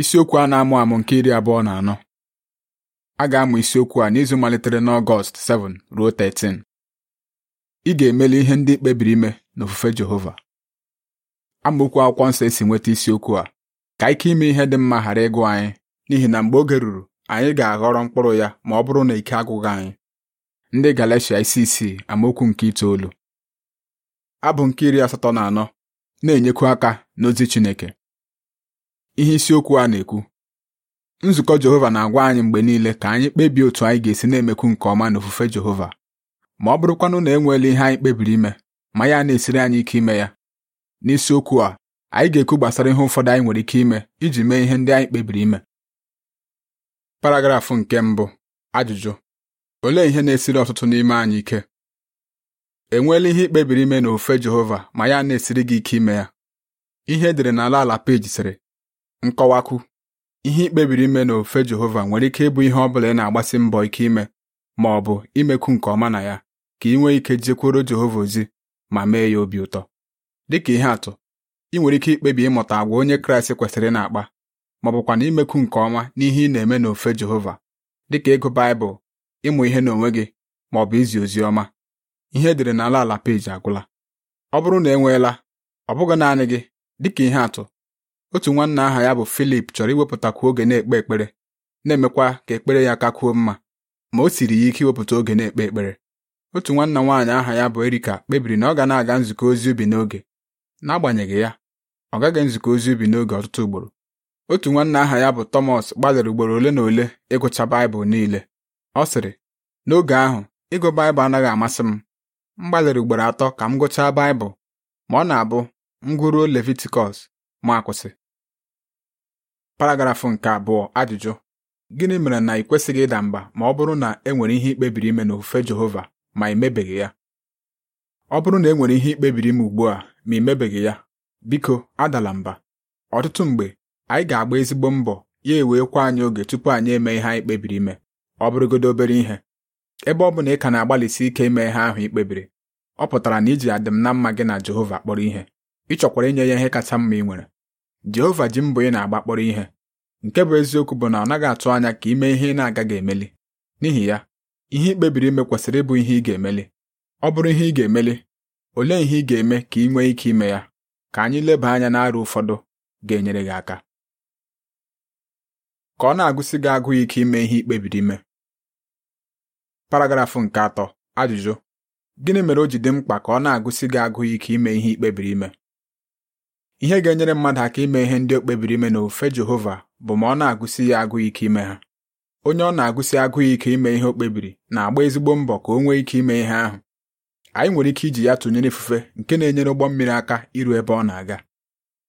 isiokwu a na-amụ amụ nke iri abụọ na anọ a ga-amụ isiokwu a n'izu malitere na ọgọst 7 ruo 13 ị ga-emeli ihe ndị kpebiri ime n'ofufe Jehova amaokwu akwụkwọ nsọ esi nweta isiokwu a ka ike ime ihe dị mma ghara ịgụ anyị n'ihi na mgbe oge ruru anyị ga-aghọrọ mkpụrụ ya ma ọ bụrụ na ike agụghị anyị ndị Galatia isi isii amaokwu nke itoolu abụ nke iri asatọ na anọ na-enyekwu aka n'ozi Chineke ihe isiokwu a na-ekwu nzukọ Jehova na-agwa anyị mgbe niile ka anyị kpebie otu anyị ga-esi na-emekwu nke ọma n'ofufe Jehova ma ọ bụrụkwanụ na enweela ihe anyị kpebiri ime ma ya na-esiri anyị ike ime ya n'isiokwu a anyị ga-ekwu gbasara ihe ụfọdụ anyị nwere ike ime iji mee ihe ndị anyị kpebiri ime paragrafụ nke mbụ ajụjụ olee ihe na-esiri ọtụtụ n'ime anyị ike enweela ihe ikpebiri ime n'ofufe Jehova ma ya na-esiri gị ike ime ya ihe edere n'ala ala peji sịrị nkọwakwu ihe ikpebiri ime n'ofe Jehova nwere ike ịbụ ihe ọ bụla ị na-agbasi mbọ ike ime ma ọ bụ imekwu nke ọma na ya ka ị nwee ike jekwuru Jehova ozi ma mee ya obi ụtọ dịka ihe atụ ị nwere ike ikpebi ịmụta agwa onye Kraịst kwesịrị na-akpa ma ọ bụkwa na imekwu nke ọma n'ihe ị na-eme n'ofe Jehova dịka ịgụ Baịbụl ịmụ ihe n'onwe gị ma ọ bụ izi ozi ọma ihe edere n'ala ala peji agwụla ọ bụrụ na enweela ọ bụghị naanị gị dịka ihe atụ otu nwanna aha ya bụ Filip chọrọ iwepụtakwu oge na-ekpe ekpere na-emekwa ka ekpere ya kakwuo mma ma o siri ya ike iwepụta oge na-ekpe ekpere otu nwanna nwaanyị aha ya bụ Erika kpebiri na ọ ga na-aga nzukọ ozi ubi n'oge n'agbanyeghị ya ọ gaghị nzukọ ozi ubi n'oge ọtụtụ ugboro otu nwanna aha ya bụ Tọmọs gbalịrị ugboro ole na ole ịgụcha Baịbụl niile ọ sịrị n'oge ahụ ịgụ Baịbụl anaghị amasị m m gbalịrị ugboro atọ ka m gụchaa Baịbụl ma ọ na-abụ m gụruo Levitikọs ma akwụsị paragrafụ nke abụọ ajụjụ gịnị mere na ị kwesịghị ịda mba ma ọ bụrụ na e nwere ihe ikpebiri ime ofufe Jehova ma ị ya ọ bụrụ na e nwere ihe ikpebiri ime ugbu a ma imebeghị ya biko adala mba ọtụtụ mgbe anyị ga-agba ezigbo mbọ ya eweekwa anyị oge tupu anyị eme ihe anyị kpebiri ime ọ bụrụgodo obere ihe ebe ọ bụ na ị ka na-agbalịsi ike ime ihe ahụ ikpebiri ọ pụtara na iji adịm na mma gị na Jehova kpọrọ ihe ị chọkwara inye ya ihe kacha mma ị nwere Jehova ji mbụ ị na-agba kpọrọ ihe nke bụ eziokwu bụ na ọ naghị atụ anya ka ime ihe ị na-agaghị emeli n'ihi ya ihe ị kpebiri ime kwesịrị ịbụ ihe ị ga-emeli ọ bụrụ ihe ị ga-emeli olee ihe ị ga-eme ka ị nwee ike ime ya ka anyị leba anya n'arụ ụfọdụ ga-enyere gị aka ka ọ na-agụsị gị agụụ ike ime ihe ị kpebiri ime paragrafụ nke atọ ajụjụ gịnị mere o ji dị mkpa ka ọ na-agụsị gị agụụ ike ime ihe ị kpebiri ime ihe ga-enyere mmadụ aka ime ihe ndị o kpebiri ime n'ofe Jehova bụ ma ọ na-agụsi ya agụụ ike ime ha onye ọ na-agụsi agụụ ike ime ihe o kpebiri na-agba ezigbo mbọ ka o nwee ike ime ihe ahụ anyị nwere ike iji ya tụnyere ifufe nke na-enyere ụgbọ mmiri aka iru ebe ọ na-aga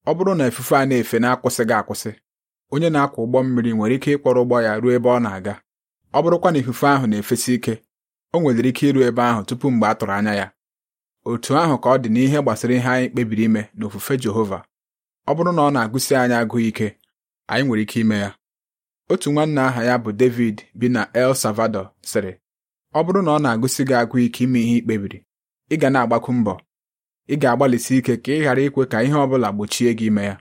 ọ bụrụ na ifufe a na-efe na-akwụsịghị akwụsị onye na-akwọ ụgbọ mmiri nwere ike ịkpọrọ ụgbọ ya ruo ebe ọ na-aga ọ bụrụkwa na ifufe ahụ na-efesi ike o nwedịrị ike iru ebe ahụ tupu mgbe a tụrụ anya ya otu ahụ ka ọ dị n'ihe gbasara ihe anyị kpebiri ime n'ofufe Jehova ọ bụrụ na ọ na-agụsi anyị agụụ ike anyị nwere ike ime ya otu nwanne aha ya bụ David bi na El Salvador sịrị ọ bụrụ na ọ na-agụsi gị agụụ ike ime ihe ikpebiri, ị ga na-agbakwu mbọ ị ga-agbalịsi ike ka ị ghara ikwe ka ihe ọ bụla gbochie gị ime ya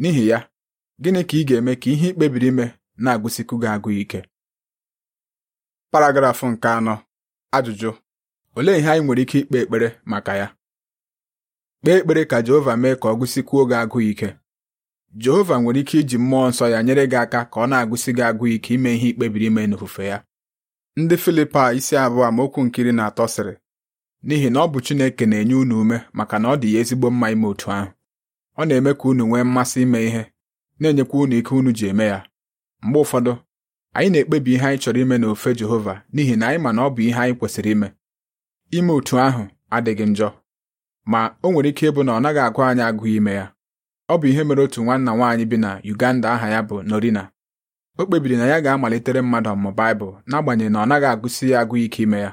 n'ihi ya gịnị ka ị ga-eme ka ihe ikpebiri ime na-agụsikwu gị agụụ ike paragrafụ nke anọ ajụjụ olee ihe anyị nwere ike ikpe ekpere maka ya kpee ekpere ka Jehova mee ka ọ gụsikwuo gị agụụ ike Jehova nwere ike iji mmụọ nsọ ya nyere gị aka ka ọ na-agụsị gị agụụ ike ime ihe ikpebiri ime n'ofufe ya ndị Filipa isi abụọ amaokwu nkiri na atọ sịrị n'ihi na ọ bụ Chineke na-enye unu ume maka na ọ dị ya ezigbo mma ime otu ahụ ọ na-eme ka unu nwee mmasị ime ihe na-enyekwa unu ike unu ji eme ya mgbe ụfọdụ anyị na-ekpebi ihe anyị chọrọ ime n'ofe Jehova n'ihi na anyị ma na ọ bụ ihe anyị kwesịrị ime ime otu ahụ adịghị njọ ma o nwere ike ịbụ na ọ naghị agụ anyị agụ ime ya ọ bụ ihe mere otu nwanna nwaanyị bi na Uganda aha ya bụ Norina o kpebiri na ya ga-amalitere mmadụ ọmụmụ Baịbụl n'agbanyeghị na ọ naghị agụsi ya agụ ike ime ya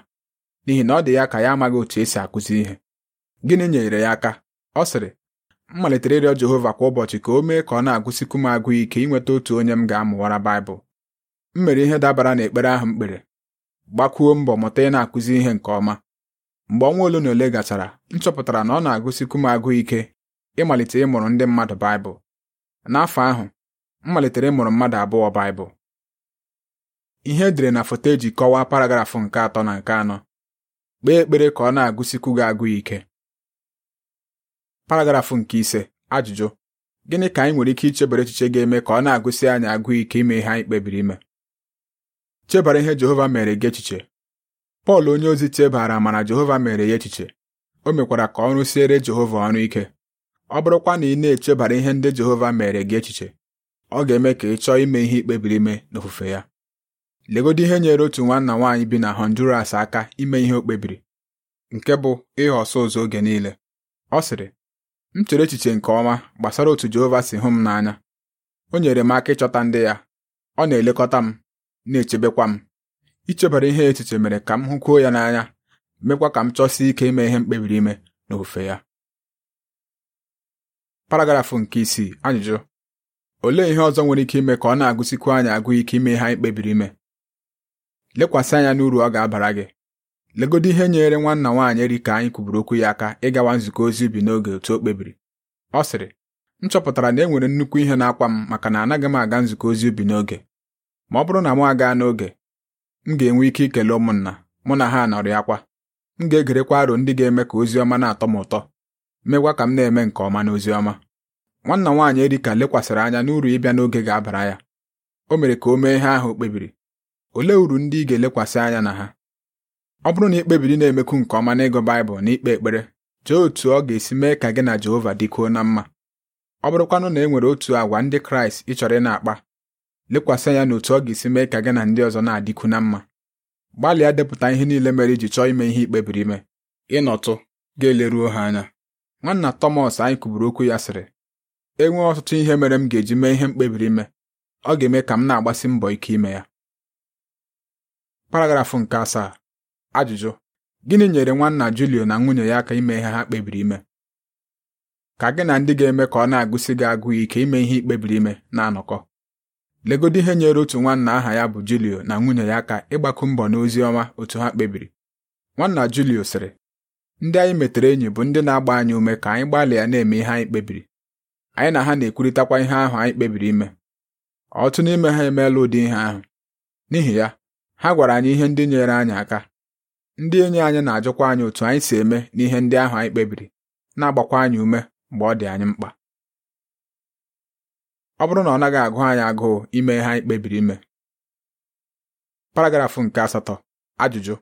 n'ihi na ọ dị ya ka ya amaghị otu esi akụzi ihe gịnị nyere ya aka ọ sịrị m malitere ịrịọ Jehova kwa ụbọchị ka o mee ka ọ na-agụsikwu m agụ ike inweta otu onye m ga-amụwara Baịbụl m mere ihe dabara ekpere ahụ m kpere gbakwuo mbọ mụta ị na-akụzi ihe nke ọma mgbe ọnwa ole na ole gachara m chọpụtara na ọ na-agụsikwu m agụụ ike ịmalite ịmụrụ ndị mmadụ Baịbụl n'afọ ahụ m malitere ịmụrụ mmadụ abụọ Baịbụl ihe edere na foto eji kọwaa paragrafụ nke atọ na nke anọ kpee ekpere ka ọ na-agụsikwu gị agụụ ike paragrafụ nke ise ajụjụ gịnị ka anyị nwere ike ichebara echiche ga-eme ka ọ na-agụsi anyị agụụ ike ime ihe anyị kpebiri ime chebara ihe Jehova mere gị echiche Pọl onyeozi chebara mana Jehova mere ya echiche o mekwara ka ọrụ siere Jehova ọrụ ike ọ bụrụkwa na ị na-echebara ihe ndị Jehova mere gị echiche ọ ga-eme ka ị chọọ ime ihe ikpebiri ime n'ofufe ya legodo ihe nyere otu nwanna nwaanyị bi na Honduras aka ime ihe o kpebiri nke bụ ịghọ ọsụ ụzọ oge niile ọ sịrị m chere echiche nke ọma gbasara otu Jehova si hụ m n'anya o nyere m aka ịchọta ndị ya ọ na-elekọta m na-echebekwa m ichebara ihe echiche mere ka m hụkwuo ya n'anya mekwa ka m chọsie ike ime ihe m kpebiri ime ofe ya paragrafụ nke isii ajụjụ olee ihe ọzọ nwere ike ime ka ọ na-agụsikwu anyị agụ ike ime ihe anyị kpebiri ime lekwasị anya n'uru ọ ga-abara gị legodo ihe nyere nwanna nwaanyị eri ka anyị kwuburu okwu ya aka ịgawa nzukọ ozi ubi n'oge otu o kpebiri ọ sịrị m chọpụtara na e nwere nnukwu ihe na-akwa m maka na anaghị m aga nzukọ ozi ubi n'oge ma ọ bụrụ na m agaa n'oge m ga-enwe ike ikele ụmụnna mụ na ha nọrị akwa m ga-egerekwa aro ndị ga-eme ka ozi ọma na-atọ m ụtọ megwa ka m na-eme nke ọma n'ozi ọma nwanna nwaanyị Erika lekwasịrị anya n'uru ịbịa n'oge ga-abara ya o mere ka o mee ihe ahụ o kpebiri olee uru ndị ị ga-elekwasị anya na ha ọ bụrụ na ị kpebiri na-emekwu nke ọma n'ịgụ Baịbụl na ikpe ekpere jee otu ọ ga-esi mee ka gị na Jehova dịkoo na mma ọ bụrụkwanụ na e nwere otu àgwà ndị Kraịst ị chọrọ ị na-akpa lekwasị anya n'otu ọ ga-esi mee ka gị na ndị ọzọ na-adịkwu na mma gbalịa depụta ihe niile mere iji chọọ ime ihe ikpebiri ime ịnọtụ ga-eleruo ha anya nwanna Thomas anyị kụburu okwu ya sịrị enwee ọtụtụ ihe mere m ga-eji mee ihe mkpebiri ime ọ ga-eme ka m na-agbasi mbọ ike ime ya paragrafụ nke asaa ajụjụ gịnị nyere nwanna Julio na nwunye ya aka ime ihe ha kpebiri ime ka gị na ndị ga-eme ka ọ na-agụsị gị agụụ ike ime ihe ikpebiri ime na-anọkọ legodi ihe nyere otu nwanna aha ya bụ Julio na nwunye ya aka ịgbakọ mbọ n'ozi ọma otu ha kpebiri nwanna Julio sịrị ndị anyị metere enyi bụ ndị na-agba anyị ume ka anyị gbalịa na-eme ihe anyị kpebiri anyị na ha na-ekwurịtakwa ihe ahụ anyị kpebiri ime ọtụ n'ime ha emeela ụdị ihe ahụ n'ihi ya ha gwara anyị ihe ndị nyere anyị aka ndị enyi anyị na-ajụkwa anyị otu anyị si eme n'ihe ndị ahụ anyị kpebiri na-agbakwa anyị ume mgbe ọ dị anyị mkpa ọ bụrụ na ọ naghị agụ anyị agụụ ime ihe anyị kpebiri ime paragrafụ nke asatọ ajụjụ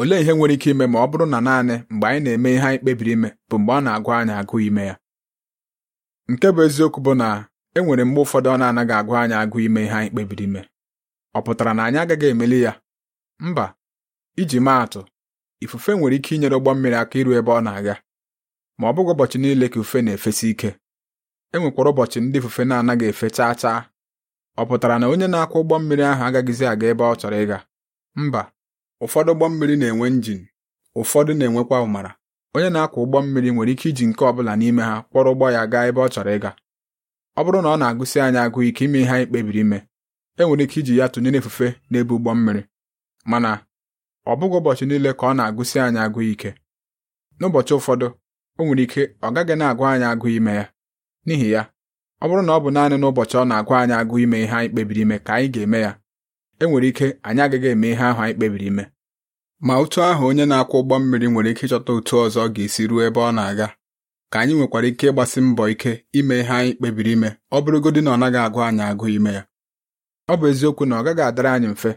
olee ihe nwere ike ime ma ọ bụrụ na naanị mgbe anyị na-eme ihe anyị kpebiri ime bụ mgbe ọ na-agụ anyị agụụ ime ya nke bụ eziokwu bụ na e nwere mgbe ụfọdụ ọ na-anaghị agụ anyị agụụ ime ihe anyị kpebiri ime ọ pụtara na anyị agaghị emeli ya mba iji maa atụ ifufe nwere ike inyere ụgbọ mmiri aka iru ebe ọ na-aga ma ọ bụghị ụbọchị niile ka ifufe na-efesi ike e ụbọchị ndị ifufe na-anaghị efe chaa chaa ọ pụtara na onye na-akwọ ụgbọ mmiri ahụ agaghịzi aga ebe ọ chọrọ ịga mba ụfọdụ ụgbọ mmiri na-enwe njin ụfọdụ na-enwekwa ụmara onye na-akwọ ụgbọ mmiri nwere ike iji nke ọ bụla n'ime ha kpọrọ ụgbọ ya gaa ebe ọ chọrọ ịga ọ bụrụ na ọ na-agụsị anyị agụụ ike ime ihe anyị kpebiri ime e nwere ike iji ya tụnyere efufe n'ebe ụgbọ mmiri mana ọ bụghị ụbọchị niile ka ọ na agụsi anyị agụụ ike n'ụbọchị ụfọdụ o nwere ike ọ gaghị na-agụ anyị agụụ ime ya n'ihi ya ọ bụrụ na ọ bụ naanị n'ụbọchị ọ na-agwa anyị agụ ime ihe anyị kpebiri ime ka anyị ga-eme ya e nwere ike anyị agaghị eme ihe ahụ anyị kpebiri ime ma otu ahụ onye na-akwọ ụgbọ mmiri nwere ike ịchọta otu ọzọ ga-esi ruo ebe ọ na-aga ka anyị nwekwara ike ịgbasi mbọ ike ime ihe anyị kpebiri ime ọ bụrụgodị na ọ naghị agụ anyị agụ ime ya ọ bụ eziokwu na ọ gaghị adịrị anyị mfe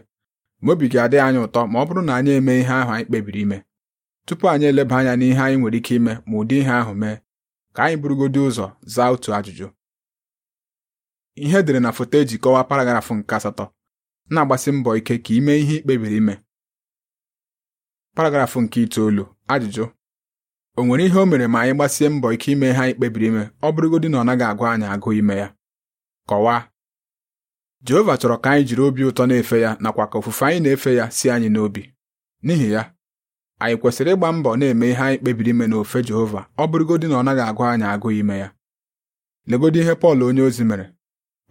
ma obi ga-adị anyị ụtọ ma ọ bụrụ na anyị eme ihe ahụ anyị kpebiri ime tupu anyị eleba anya n'ihe anyị nwere ike ime ma ụdị ihe ahụ mee ka anyị burugodị ụzọ zaa otu ajụjụ ihe edere na foto eji kọwaa paragrafụ nke asatọ na-agbasi mbọ ike ka ime ihe kpebiri ime paragrafụ nke itoolu ajụjụ o nwere ihe o mere ma anyị gbasie mbọ ike ime ihe anyị kpebiri ime ọ bụrụgodị na ọ naghị agụ anyị agụ ime ya kọwaa Jehova chọrọ ka anyị jiri obi ụtọ na-efe ya nakwa ka ofufe anyị na-efe ya si anyị n'obi n'ihi ya anyị kwesịrị ịgba mbọ na-eme ihe anyị kpebiri ime n'ofe Jehova ọ bụrụgodị na ọ naghị agụ anyị agụ ime ya legodị ihe Pọl onye ozi mere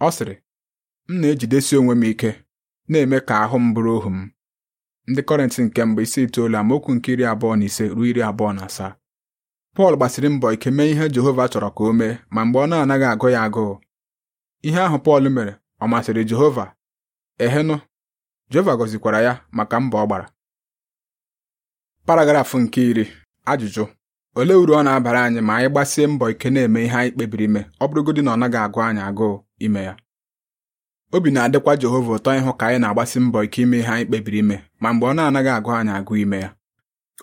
ọ sịrị m na-ejidesi onwe m ike na-eme ka ahụ m bụrụ ohu m ndị Kọrentị nke mbụ isi itoolu amaokwu nke iri abụọ na ise ruo iri abụọ na asaa Pọl gbasiri mbọ ike mee ihe Jehova chọrọ ka o mee ma mgbe ọ na-anaghị agụ ya agụụ ihe ahụ Pọl mere ọ masịrị Jehova ehenụ Jehova gọzikwara ya maka mbọ ọ gbara paragrafụ nke iri ajụjụ olee uru ọ na-abara anyị ma anyị gbasie mbọ ike na-eme ihe anyị kpebiri ime ọ bụrụgodị na ọ naghị agụ anyị agụụ ime ya obi na-adịkwa Jehova ụtọ ịhụ ka anyị na-agbasi mbọ ike ime ihe anyị kpebiri ime ma mgbe ọ na-anaghị agụ anyị agụ ime ya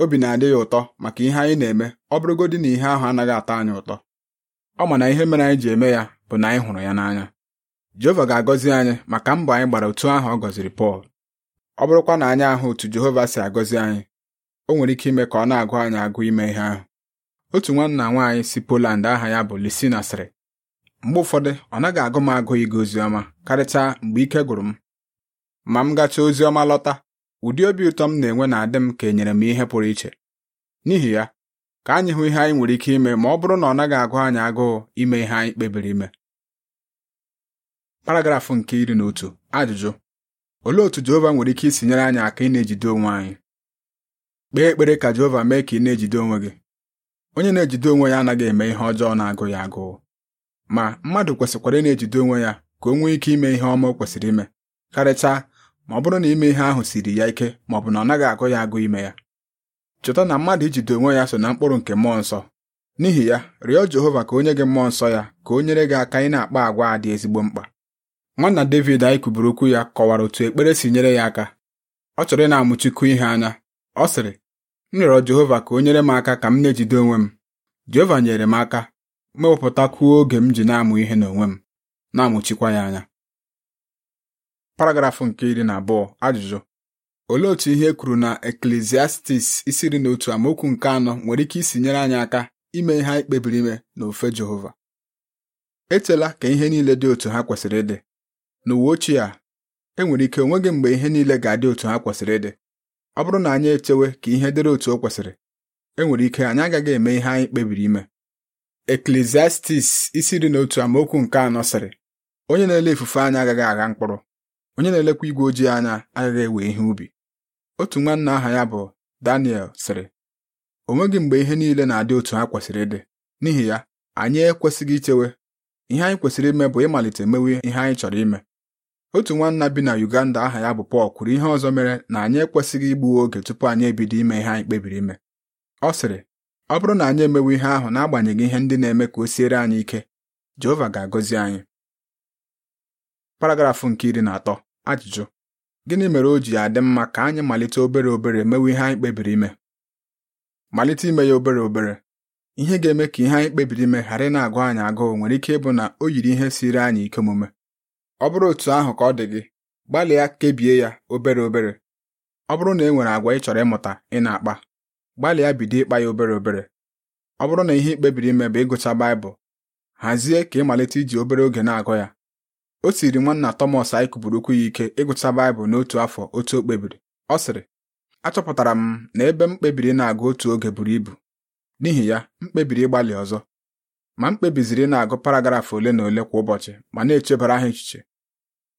obi na-adị ya ụtọ maka ihe anyị na-eme ọ bụrụgodị na ihe ahụ anaghị atọ anyị ụtọ ọ ma na ihe mere anyị ji eme ya bụ na anyị hụrụ ya n'anya Jehova ga-agọzi anyị maka mbọ anyị gbara otu ahụ ọ gọziri Pọl ọ bụrụkwa na anyị ahụ otu Jehova si agọzi anyị o nwere ike ime ka ọ na-agụ anyị agụ ime ihe ahụ otu nwanna nwaanyị si Poland aha ya bụ Lisina sịrị mgbe ụfọdụ ọ naghị agụ m agụ ịga oziọma karịchaa mgbe ike gwụrụ m ma m gacha oziọma lọta ụdị obi ụtọ m na-enwe na-adị m ka enyere m ihe pụrụ iche n'ihi ya ka anyị hụ ihe anyị nwere ike ime ma ọ bụrụ na ọ naghị agụ anyị agụụ ime ihe anyị kpebiri ime paragrafụ nke iri na otu ajụjụ olee otu Jehova nwere ike isi nyere anyị aka ị na-ejide onwe anyị kpee ekpere ka Jehova mee ka ị na-ejide onwe gị onye na-ejide onwe ya anaghị eme ihe ọjọọ na-agụ ya agụụ ma mmadụ kwesịkwara ị na-ejide onwe ya ka o nwee ike ime ihe ọma o kwesịrị ime karịchaa ma ọ bụrụ na ime ihe ahụ siri ya ike ma ọ bụ na ọ naghị agụ ya agụ ime ya Chọta na mmadụ ijide onwe ya so na mkpụrụ nke mmụọ nsọ n'ihi ya rịọ Jehova ka onye gị mmụọ nsọ ya ka o nyere gị aka ị na-akpa agwa a dị ezigbo mkpa nwanna David anyị kwuburu okwu ya kọwara otu ekpere si nyere ya aka ọ chọrọ ị na-amụchikwu ihe anya ọ sịrị m rịọrọ Jehova ka o nyere m aka ka m na-ejide onwe m Jehova nyere m aka mewepụtakwuo oge m ji na-amụ ihe n'onwe m na-amụchikwa ya anya paragrafụ nke iri na abụọ ajụjụ olee otu ihe e kwuru na Eklesiastis isi iri na otu amaokwu nke anọ nwere ike isi nyere anyị aka ime ihe anyị kpebiri ime n'ofe Jehova echela ka ihe niile dị otu ha kwesịrị ịdị n'uwe ochie a enwere ike onweghị mgbe ihe niile ga-adị otu ha kwesịrị ịdị ọ bụrụ na anyị echewe ka ihe dịrị otu o kwesịrị enwere ike anyị agaghị eme ihe anyị kpebiri ime Eklesiastis isi dị n'otu otu amaokwu nke anọ sịrị onye na-ele ifufe anya agaghị agha mkpụrụ onye na-elekwa igwe ojii anya agaghị ewe ihe ubi otu nwanna aha ya bụ Daniel sịrị o nweghị mgbe ihe niile na-adị otu ha kwesịrị ịdị n'ihi ya anyị ekwesịghị ichewe ihe anyị kwesịrị ime bụ ịmalite mewe ihe anyị chọrọ ime otu nwanna bi na Uganda aha ya bụ Paul kwuru ihe ọzọ mere na anyị ekwesịghị igbu oge tupu anyị ebido ime ihe anyị kpebiri ime ọ sịrị ọ bụrụ na anyị emewe ihe ahụ n'agbanyeghị ihe ndị na-eme ka o siere anyị ike Jehova ga-agọzi anyị paragrafụ nke iri na atọ ajụjụ gịnị mere o ji adị mma ka anyị malite obere obere mewe ihe anyị kpebiri ime malite ime ya obere obere ihe ga-eme ka ihe anyị kpebiri ime ghara ị na-agụ anyị agụụ nwere ike ịbụ na o yiri ihe siri anyị ike omume ọ bụrụ otu ahụ ka ọ dị gị gbalịa kebie ya obere obere ọ bụrụ na e nwere àgwà ị chọrọ ịmụta ị na-akpa gbalịa bido ịkpa ya obere obere ọ bụrụ na ihe ikpebiri ime bụ ịgụcha Baịbụl hazie ka ịmalite iji obere oge na-agụ ya o siri nwanna tomas anyị kupụrụ okwu ya ike ịgụcha Baịbụl n'otu afọ otu o kpebiri ọ sịrị achọpụtara m na ebe m kpebiri na-agụ otu oge buru ibu n'ihi ya m kpebiri ịgbalị ọzọ ma m kpebiziri na-agụ paragraf ole na ole kwa ụbọchị ma na-echebara ha echiche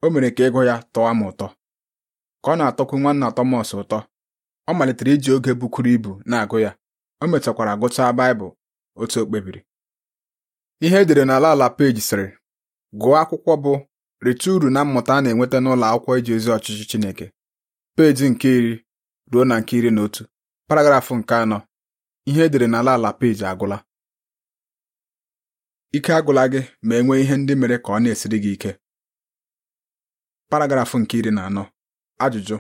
o mere ka ịgụ ya tọwa m ụtọ ka ọ na-atọkwu nwanna Thomas ụtọ ọ malitere iji oge bukwuru ibu na-agụ ya o mechakwara gụchaa Baịbụl otu o kpebiri ihe edere n'ala ala peji sịrị gụọ akwụkwọ bụ rite uru na mmụta a na-enweta n'ụlọ akwụkwọ iji ozi ọchịchị Chineke peji nke iri ruo na nke iri na otu paragrafụ nke anọ ihe edere n'ala ala peji agwụla ike agwụla gị ma e nwee ihe ndị mere ka ọ na-esiri gị ike paragrafụ nke iri na anọ ajụjụ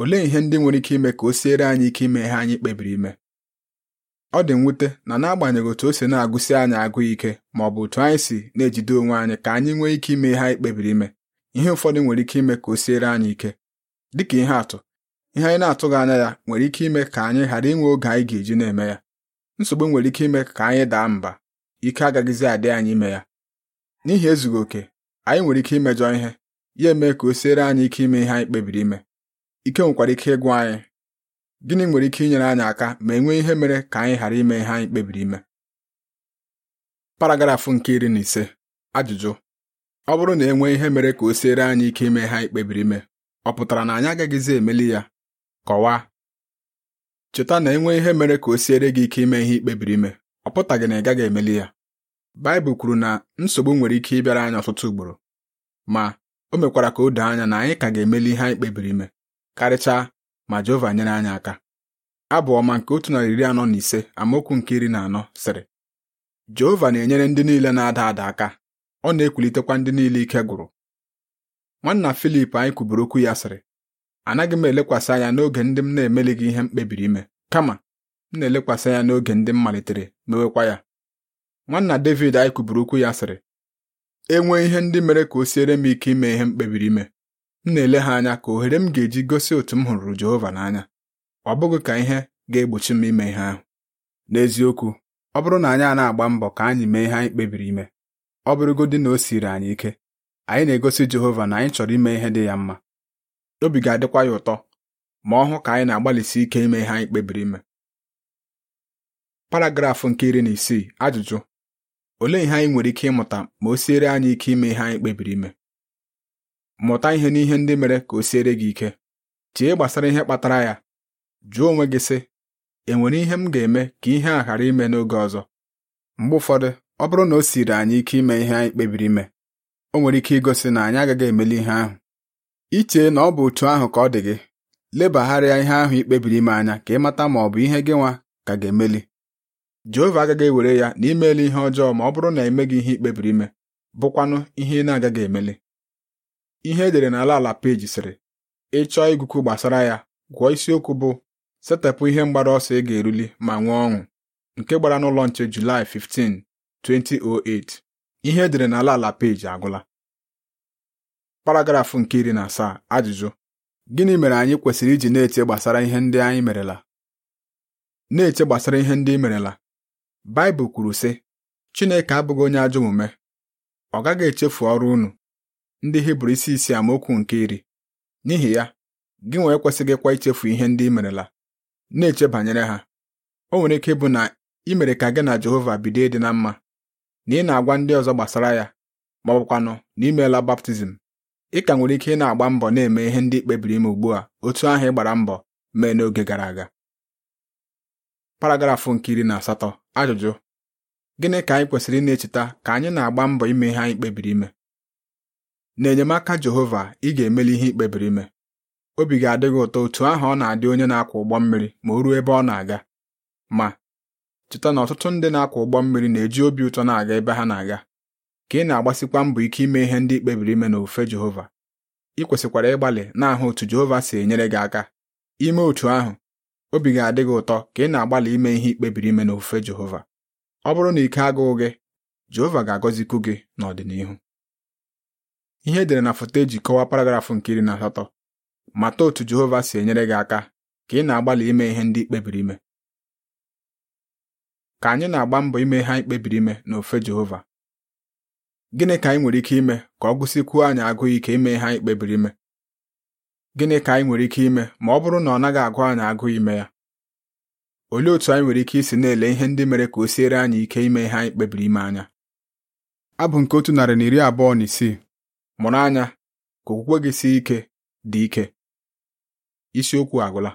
olee ihe ndị nwere ike ime ka o siere anyị ike ime ihe anyị kpebiri ime ọ dị mwute na n'agbanyeghị otu o si na-agụsi anyị agụ ike ma ọ bụ otu anyị si na-ejide onwe anyị ka anyị nwee ike ime ihe anyị kpebiri ime ihe ụfọdụ nwere ike ime ka o siere anyị ike dịka ihe atụ ihe anyị na-atụghị anya ya nwere ike ime ka anyị ghara inwe oge anyị ga-eji na-eme ya nsogbu nwere ike ime ka anyị daa mba ike agaghịzi adị anyị ime ya n'ihi ezughị oke anyị nwere ike imejọ ihe ya eme ka o siere anyị ike ime ihe anyị kpebiri ime ike nwekwara ike ịgwa anyị gịnị nwere ike inyere anyị aka ma e nwee ihe mere ka anyị ghara ime ihe anyị kpebiri ime paragrafụ nke iri na ise ajụjụ ọ bụrụ na e nwee ihe mere ka o siere anyị ike ime ihe anyị kpebiri ime ọ pụtara na anyị agaghịzi emeli ya kọwaa cheta na e nwee ihe mere ka o siere gị ike ime ihe ikpebiri ime ọ pụtaghị na ị gaghị emeli ya Baịbụl kwuru na nsogbu nwere ike ịbịara anyị ọtụtụ ugboro ma o mekwara ka o doo anya na anyị ka ga-emeli ihe anyị kpebiri ime karịchaa ma Jehova nyere anyị aka abụ ọma nke otu narị iri anọ na ise amaokwu nke iri na anọ sịrị Jehova na-enyere ndị niile na-ada ada aka ọ na ekwulitekwa ndị niile ike gwụrụ nwanna Filip anyị kwuburu okwu ya sịrị anaghị m elekwasị anya n'oge ndị m na gị ihe m kpebiri ime kama m na-elekwasị anya n'oge ndị m malitere mewekwa ya nwanna David anyị kwuburu okwu ya sịrị enwee ihe ndị mere ka o siere m ike ime ihe m kpebiri ime m na-ele ha anya ka ohere m ga-eji gosi otu m hụrụ Jehova n'anya ọ bụghị ka ihe ga-egbochi m ime ihe ahụ n'eziokwu ọ bụrụ na anyị a na-agba mbọ ka anyị mee ihe anyị kpebiri ime ọ bụrụgodị na o siri anyị ike anyị na-egosi Jehova na anyị chọrọ ime ihe dị ya mma obi ga-adịkwa ya ụtọ ma ọ hụ ka anyị na-agbalịsi ike ime ihe anyị kpebiri ime paragrafụ nke iri na isii ajụjụ olee ihe anyị nwere ike ịmụta ma o siere anyị ike ime ihe anyị kpebiri ime mụta ihe n'ihe ndị mere ka o siere gị ike chee gbasara ihe kpatara ya jụọ onwe gị sị enwere ihe m ga-eme ka ihe a ghara ime n'oge ọzọ mgbe ụfọdụ ọ bụrụ na o siri anyị ike ime ihe anyị kpebiri ime o nwere ike igosi na anyị agaghị emeli ihe ahụ ichee na ọ bụ otu ahụ ka ọ dị gị lebagharịa ihe ahụ ikpebiri ime anya ka ị mata ma ọ bụ ihe gị nwa ka ga-emeli Jehova agaghị ewere ya na imeela ihe ọjọọ ma ọ bụrụ na emeghị ihe ikpebiri ime bụkwanụ ihe ị na-agaghị emeli ihe edere n'ala ala peji sịrị ịchọọ chọọ gbasara ya gụọ isiokwu bụ setepụ ihe mgbara ọsọ ị ga-eruli ma nwee ọṅụ nke gbara n'ụlọ nche Julaị 15 2008 ihe edere n'ala ala peji agwụla paragrafụ nke iri na asaa ajụjụ gịnị mere anyị kwesịrị iji na-eche gbasara ihe ndị anyị merela na-eche gbasara ihe ndị i merela Baịbụl kwuru sị Chineke abụghị onye ajọ omume ọ gaghị echefu ọrụ unu ndị Hibru isi isi amaokwu nke iri n'ihi ya gị nwa ekwesịghịkwa ichefu ihe ndị i merela na-eche banyere ha o nwere ike ịbụ na i mere ka gị na Jehova bido ịdị na mma na ị na-agwa ndị ọzọ gbasara ya ma ọ bụkwanụ na imeela baptizim ị ka nwere ike ị na-agba mbọ na-eme ihe ndị kpebiri ime ugbu a otu ahụ ị gbara mbọ mee n'oge gara aga paragrafụ nke iri na asatọ ajụjụ gịnị ka anyị kwesịrị na echeta ka anyị na-agba mbọ ime ihe anyị kpebiri ime n'enyemaka Jehova ị ga-emeli ihe ikpebiri ime obi ga-adị gị ụtọ otu ahụ ọ na-adị onye na-akwọ ụgbọ mmiri ma o ruo ebe ọ na-aga ma cheta na ọtụtụ ndị na-akwọ ụgbọ mmiri na-eji obi ụtọ na-aga ebe ha na-aga ka ị na-agbasikwa mbọ ike ime ihe ndị ikpebiri ime n'ofe Jehova ị kwesịkwara ịgbalị na-ahụ otu Jehova si enyere gị aka ime otu ahụ obi ga-adị gị ụtọ ka ị na-agbalị ime ihe ikpebiri ime n'ofufe Jehova ọ bụrụ na ike agụụ gị Jehova ga-agọzikwu gị n'ọdịnihu ihe edere na foto eji kọwaa paragrafụ nke iri na asatọ mata otu Jehova si enyere gị aka ka ị na-agbalị ime ihe ndị ikpebiri ime ka anyị na-agba mbọ ime ihe anyị kpebiri ime n'ofe Jehova gịnị ka anyị nwere ike ime ka ọ gụsịkwuo anyị agụụ ike ime ihe anyị kpebiri ime Gịnị ka anyị nwere ike ime ma ọ bụrụ na ọ naghị agụ anyị agụ ime ya? Olee otú anyị nwere ike isi na-ele ihe ndị mere ka o siere anyị ike ime ihe anyị kpebiri ime anya? Abụ nke otu narị na iri abụọ na isii mụrụ anya ka okwukwe gị sie ike dị ike. Isiokwu agwụla.